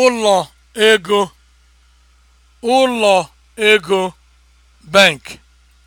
ụlọ ego ụlọ ego bank